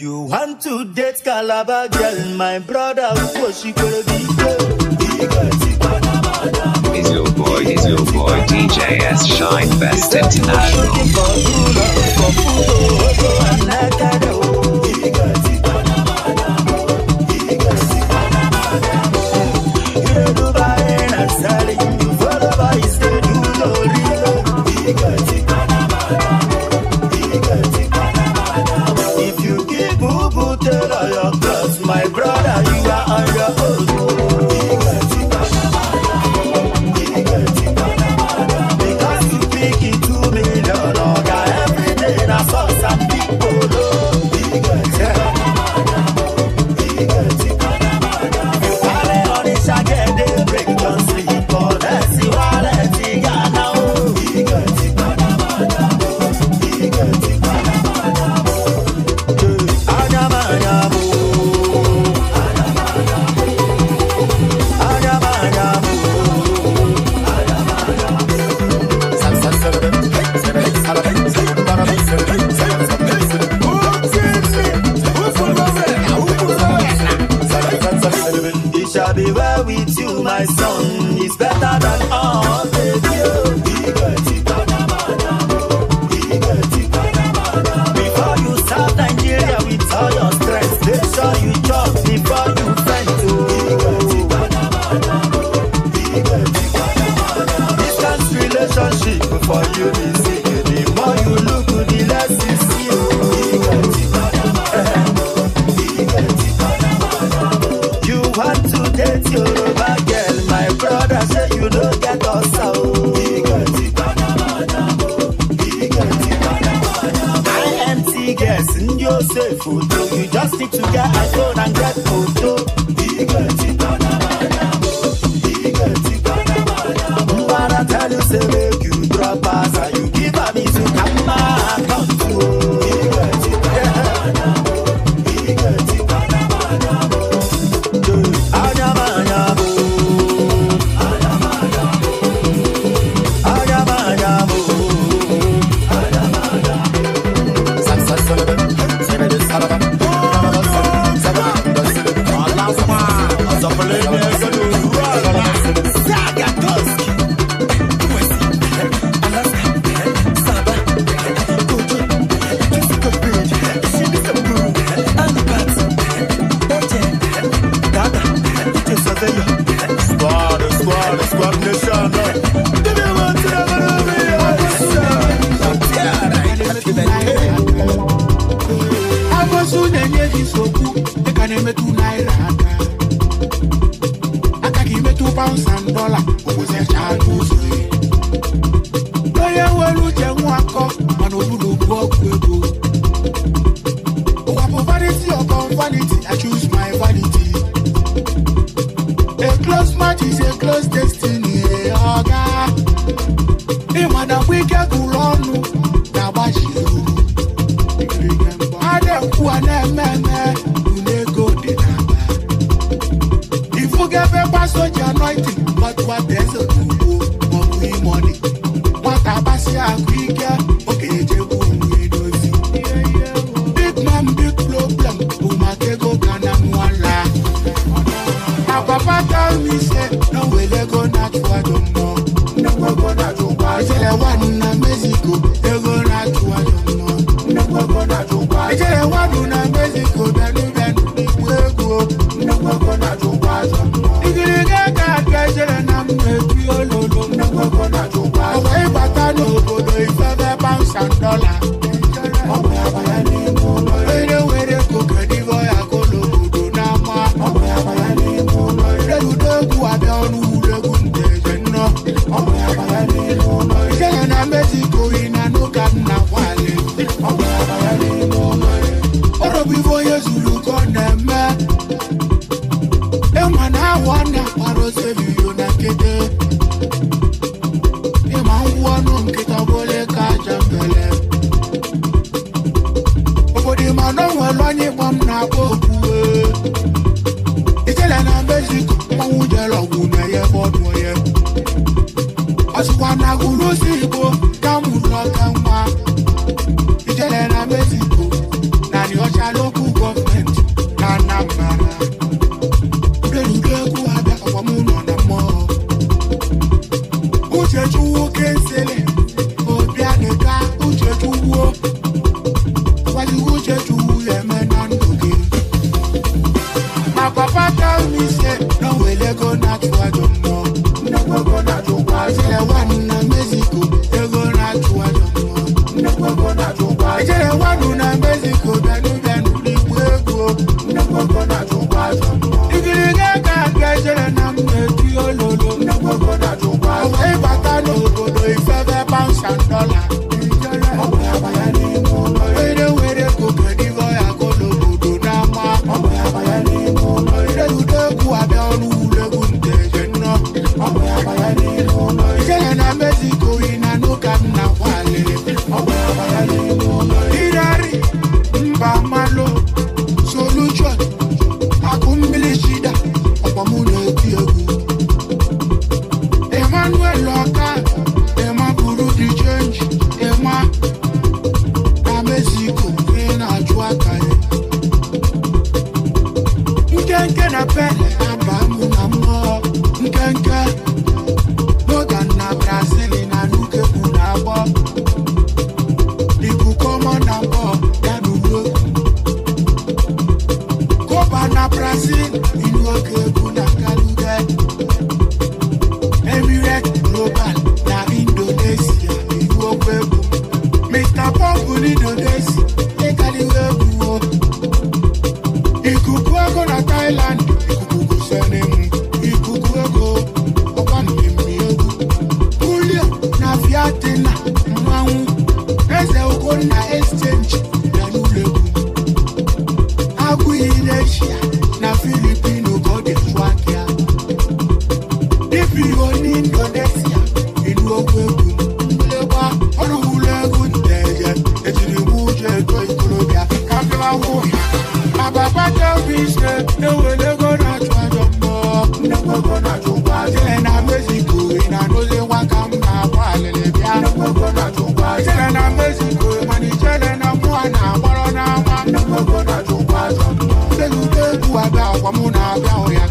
You want to date Calabar girl, my brother, what she gonna be? Is your boy, he's your boy DJ S Shine Best International? dis so do make i name two naira ife onye zuru ugo na-eme ịma na ahụ a na-akpara osebiyo na nkịtị ịma ngwa ọnụ nkịta bụle ka aja mbele obodo ịma na onwere onye ịgba m na-akpọ okwuwe itele na mexico mmanwụ jere ọgwụ na ya ebe ọdụ onye ọsịkwa na agụrụ osi igbo malaysia na filipino go dey track ya if you go ní indonesia ìlú ogun ńlẹ́wà ọlọ́run lẹ́gùn tẹ̀yẹ ètùnúwú jẹ́ ètò ìkọlọ́bíà káfíńwá wò yá bàbá pàtó fi ṣe ewé lẹ́gọ́ náà tó àjọ mọ́ ńlẹ́gbẹ́gbẹ́ náà tó bá jẹ́ na mexico ìnáwó lé wákàmù náà wà lẹ́lẹ́bíà ńlẹ́gbẹ́gbẹ́ náà tó bá jẹ́ na mexico. ga akwa mụ na-abịa hụ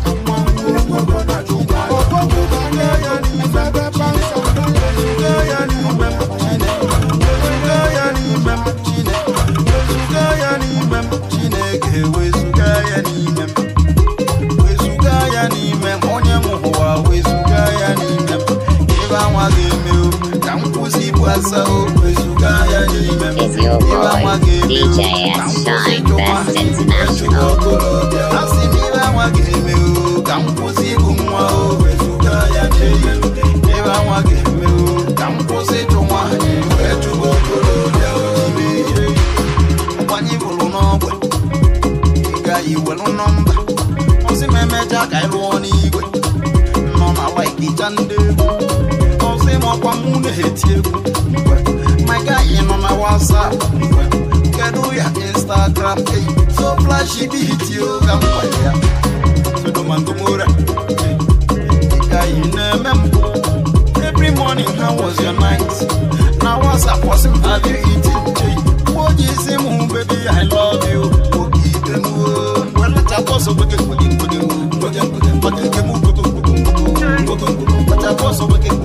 wezuga okorobịa a sị m ibe anwa ga-eme o ka m kwụsị ịbụ nwa o wezuga ya n'iyi ibe anwa ga-eme o ka m kwụsị ịchụ nwaanyị wee chụba okorobịa ojibe ihe mgbanye bụrụ n'ọgwe ịga iwelu nọmba ozi m emeja ka anyị n'igwe nọ na laikija ndị egwu ozi m ọkwa mụ na-eti egwu mgbe maga ị nọ na wasap kedu ya instagram eyi every morning how was your night? Now what's up? What's up? Have you eaten? What is it, baby? I love you. Oh, keep them Well, let us also look at what you do. But I was over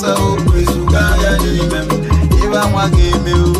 sɛ o kure suga yɛ ne yimɛ mu yɛ bɛ nwa k'eme o.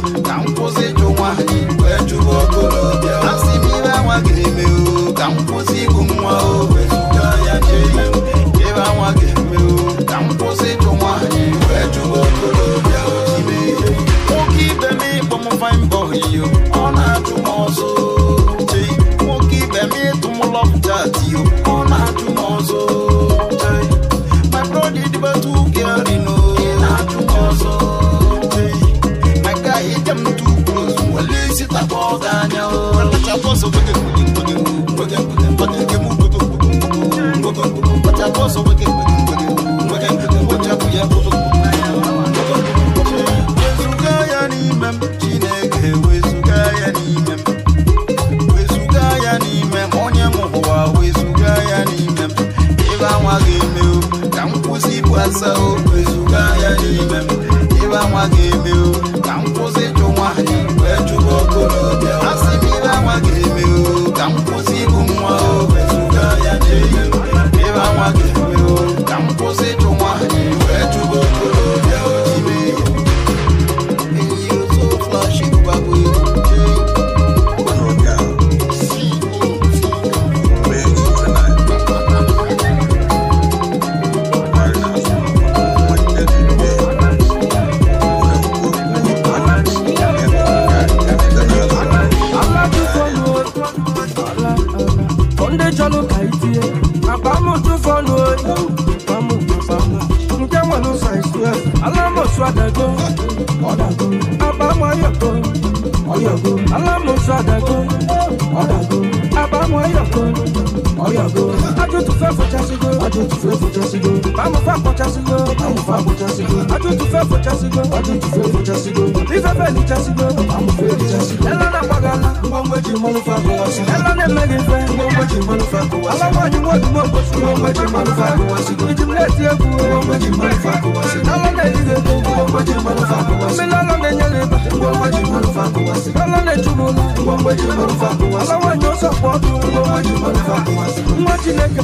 mgbe ji mmanụ fa akụwasị ebe na-eme gị mfe mgbe ji mmanụ fa akụwasị ala nwaanyị nwodumo mgbochi mgbe ji mmanụ fa akụwasị iji m na-eti egwu mgbe ji mmanụ fa akụwasị ala na-eri gị ego mgbe ji mmanụ fa akụwasị mmiri ala na-enye gị ịba mgbe ji mmanụ fa akụwasị ala na-echu m ụlọ mgbe ji mmanụ fa akụwasị ala nwaanyị ọsọ kpọ ọkụ mgbe ji mmanụ fa akụwasị nwa chineke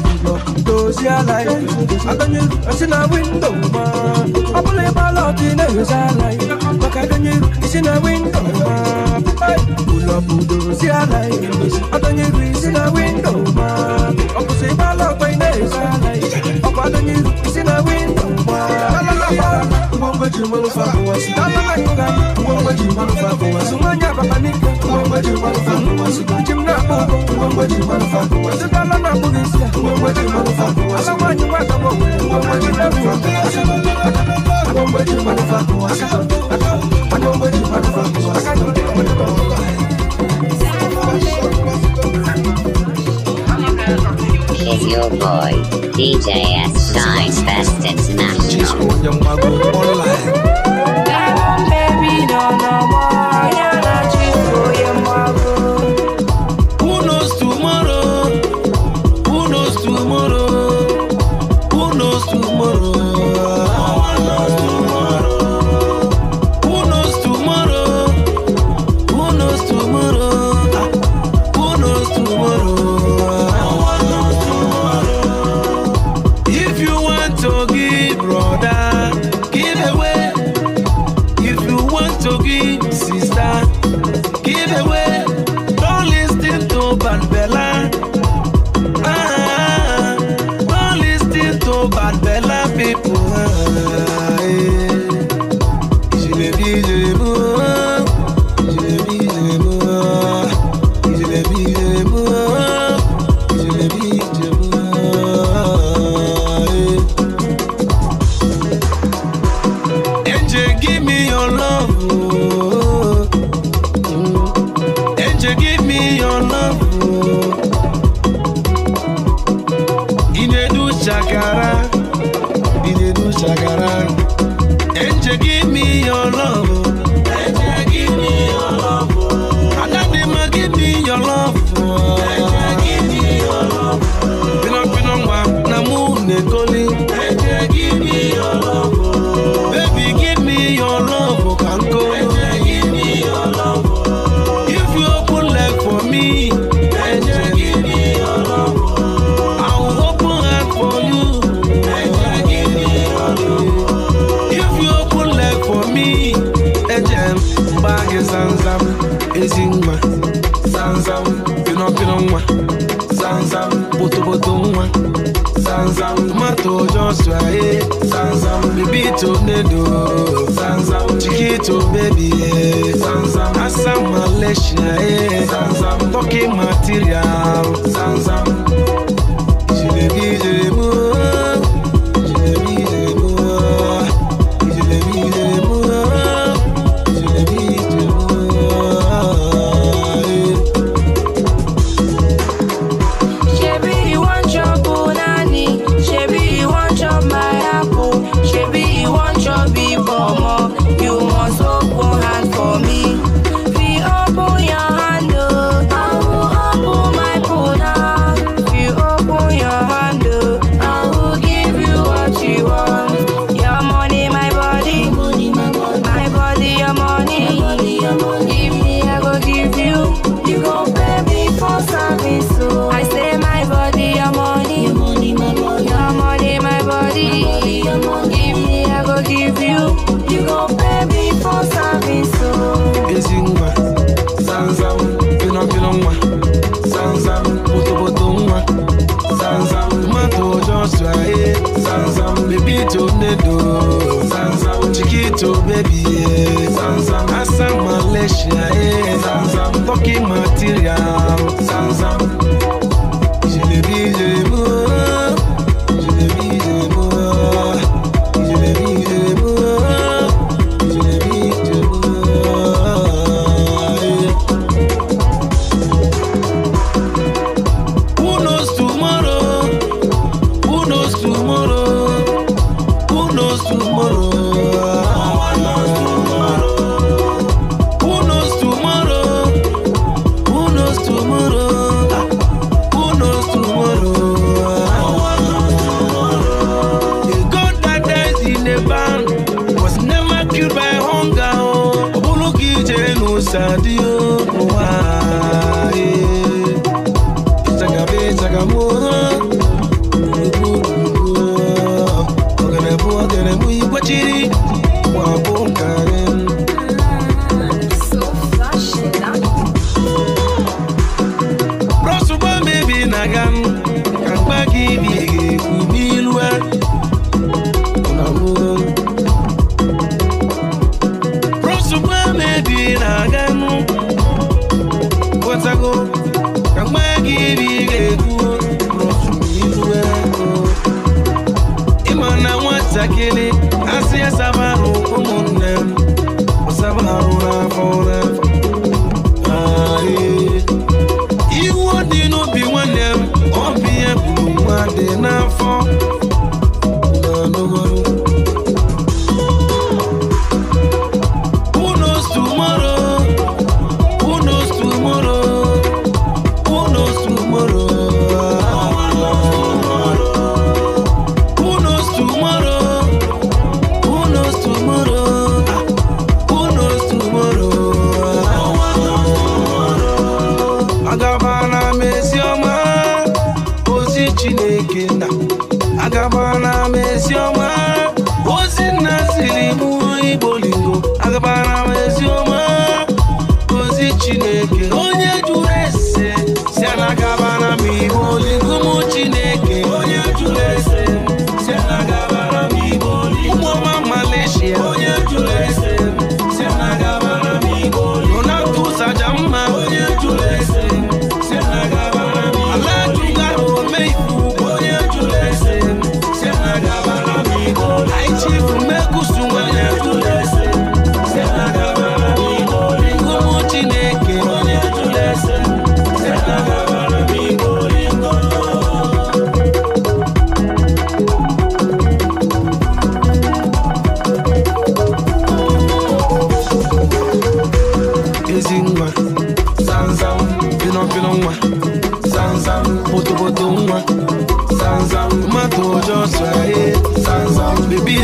dozie ala ya adanye si na windo ma ọ bụla ịgbala ne na-eghezi ala ya akadonyeru isi na windo ma ụlọbudo si ala adonyeru isi na windo ma ọbụsị ịgbala ọkwa ị na-eso ọkwa adonyeru isi na windo ma ji mmanụ fa bụ wasu dabara ịkụga ngwangwa ji mmanụ fa bụ wasu nwanyị ababa n'ike ngwangwa ji mmanụ fa bụ wasu ji m na-akpọ ụgwọ ngwangwa ji mmanụ fa bụ wasu dala na-akpụ gị isi ngwangwa ji mmanụ fa bụ wasu ala nwanyị nwa agamọ ngwangwa ji mmanụ fa bụ wasu ngwangwa ji mmanụ fa bụ wasu ngwangwa ji mmanụ fa bụ wasu is your boy, DJ S. Shine Fest International. Who knows tomorrow? Who knows tomorrow? Who knows tomorrow. baby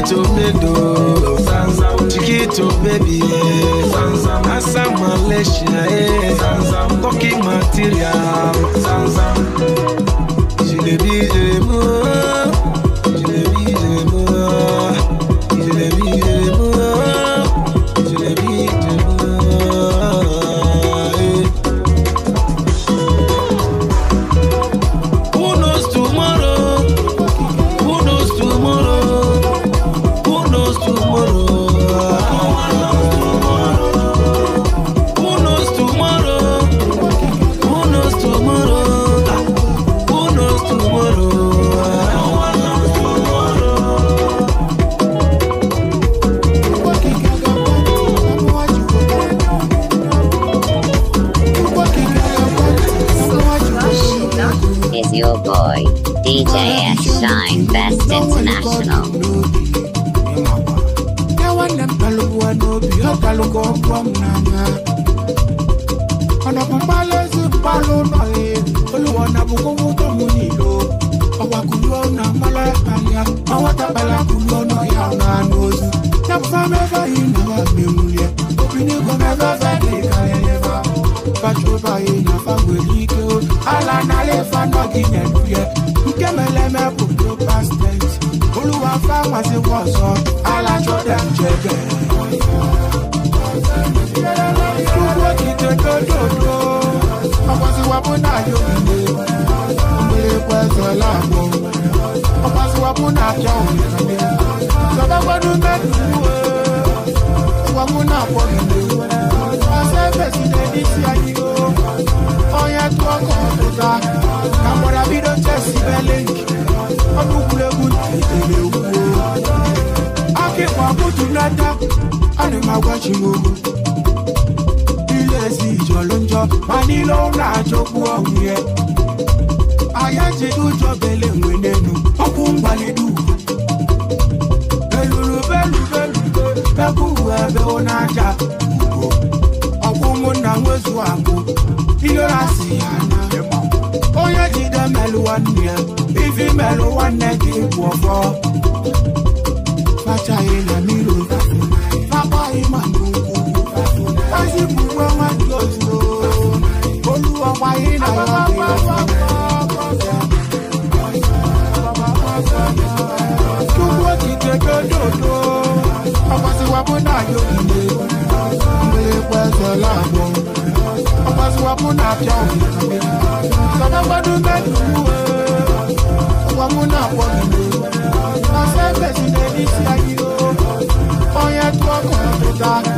to bedo Chiquito baby Asa Malaysia eh. Talking material dáadáa ọ̀nà máa wá ṣe o. bílẹ̀sì ìjọ ló ń jọ máa ní ló ń ra àjọkú ọ̀hún yẹn. ayé ti tún jọ bẹ̀lẹ̀ ìwé lẹ́nu ọkùn ń balẹ̀dù. èlùlù bẹ́ẹ̀lù bẹ́ẹ̀lù bẹ́ẹ̀kú ẹ̀bẹ̀ wọn náà jà kúrò. ọkùn mo nà ń wẹ̀sù àgbo ìlera sì àná. onye jide melu nwanne ya ifi melu nwanne gị bụ ọfọ. fachaghị na mmiri. Rock.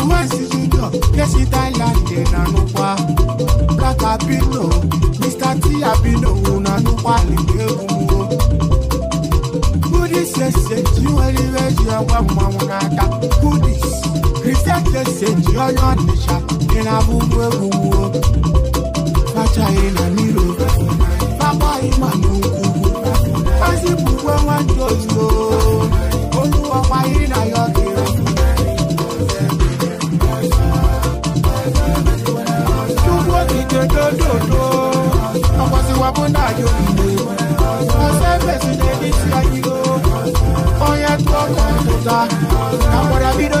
romance junior kesi thailand dey na nukwa black abino mr t abino una nukwa lebe umuo kudi sese ti weli weji ọgbẹ mọ wọn n'aka kudi kristian sese ti ọyọ nìṣà ìnà búbu egungun o fàtà ìnà nílò bàbá ìmọ̀ ní nkùnkùn fásitì gbogbo wọn jòjò olúwọ̀pá ìrìnà yọ. ọbụna anyị ogide ọsọ efesina isi go onye tụọ kọmpụta na gwara bido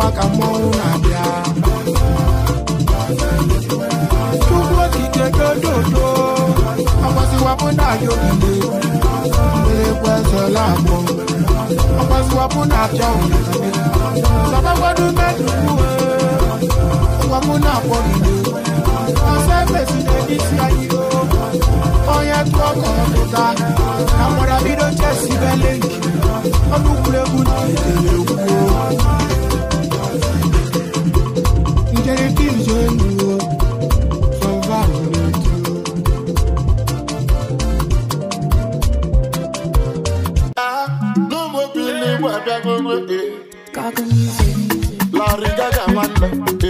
ụwa ka mmọnwụ na-abịa chukwu okike gododo akwasịwapụ na aja ogige mberekwa ezela agbọ akwasịwapụ na aja ogige sabakwado meduwe ụwapụ na akpọgide ọsọ efesi na-edisi anyị onye tụọ ka ọtụta na mgbada bido chesi belenki ọnụ kwuregwu na itelekwu La man, eh.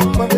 someone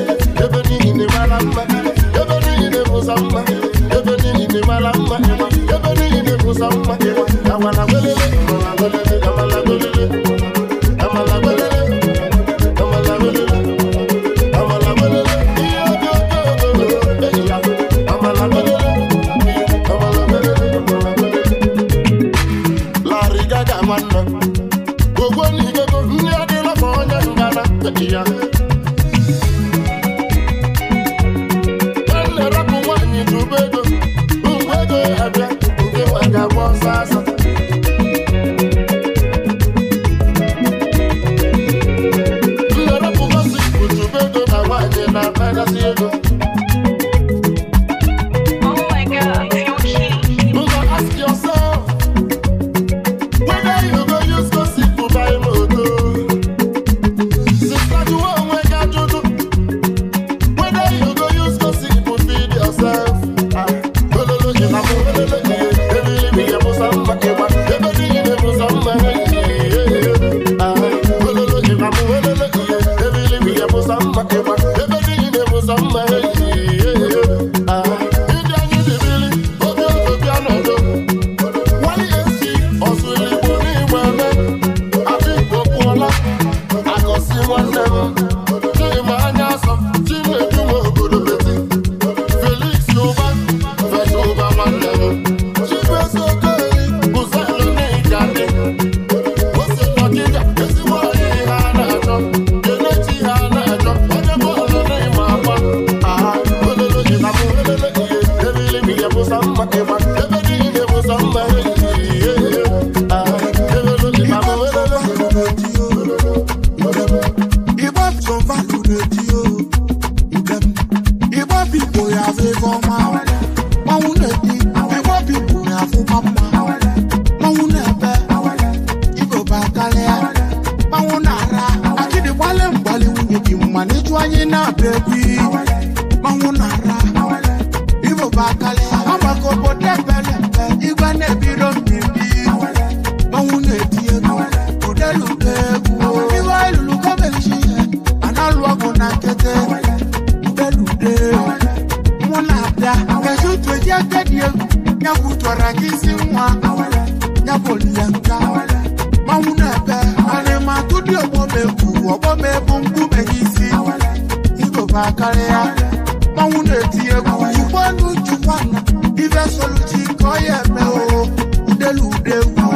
egwu chukwanu chukwanu ife soluchi ka ọ ya eme o udelu udegwu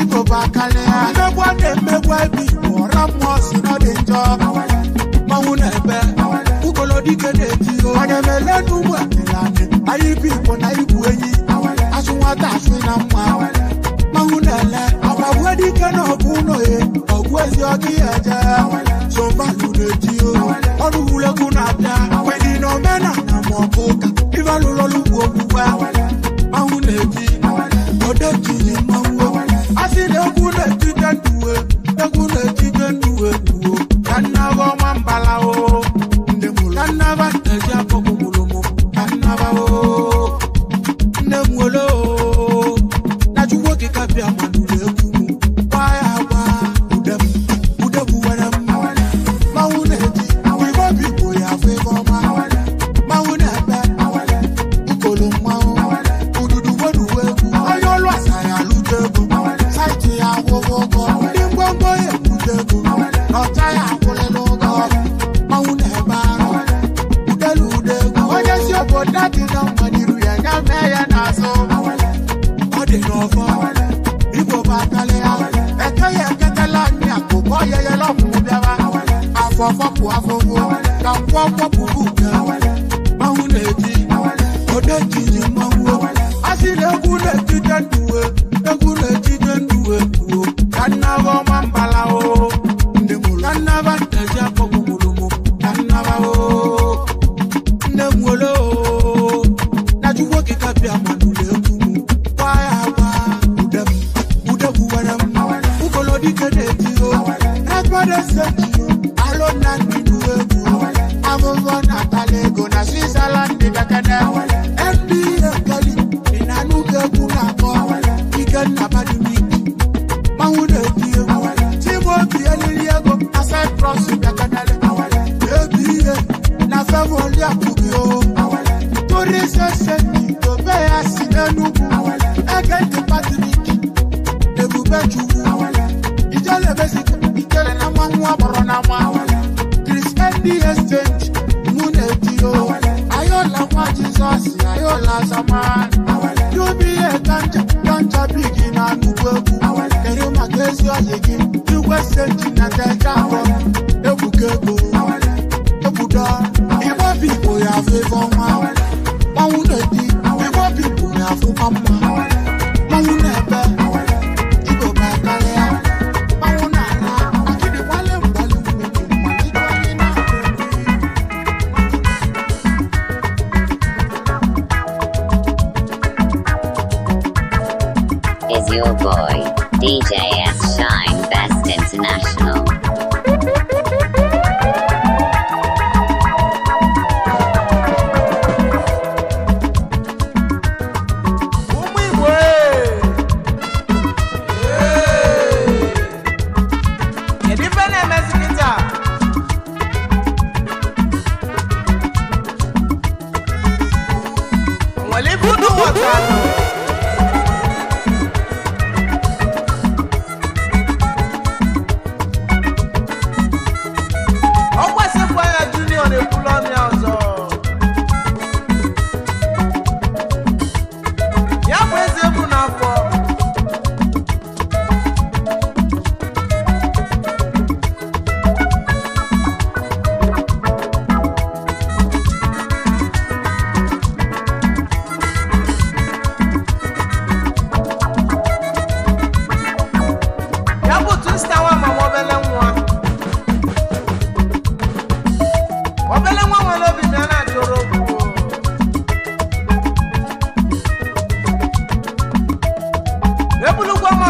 igoba karịa mmegwa na-emegwa ebe igbo ọra mmụọ si nọ dị njọ mmanwụ na ebe ugolodike na-eji onye mele n'ugbo adịlanị anyị ibe igbo na igwu na mma mmanwụ na-ele ọgbagwe dike na ọgụ ụlọ ya ọgụ ezi ọdị ya eje ibe alụrụ ọlụ ugwu ogbugbu ahụ na kwọfọpụ afọwo ka kwọkwọpụbụ ka mmanwụ na-eti odeji ji mmanwụ asị egwu na-etite nduwe I'm ọ̀bẹ́lẹ́ wọn wọn lóbi náírà dúró gbogbo. ebulugbo ọmọ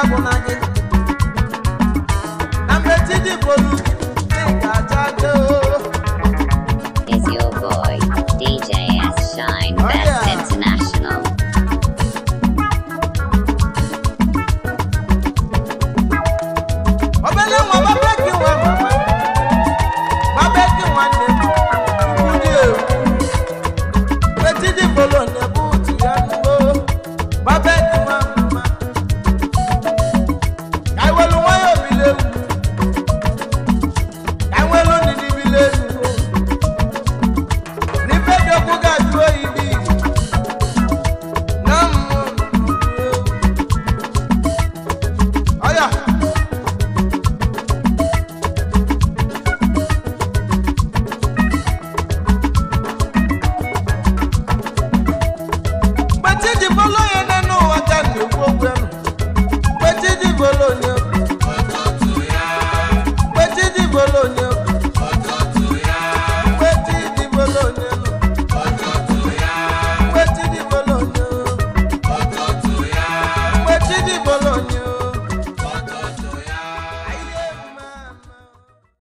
Dragon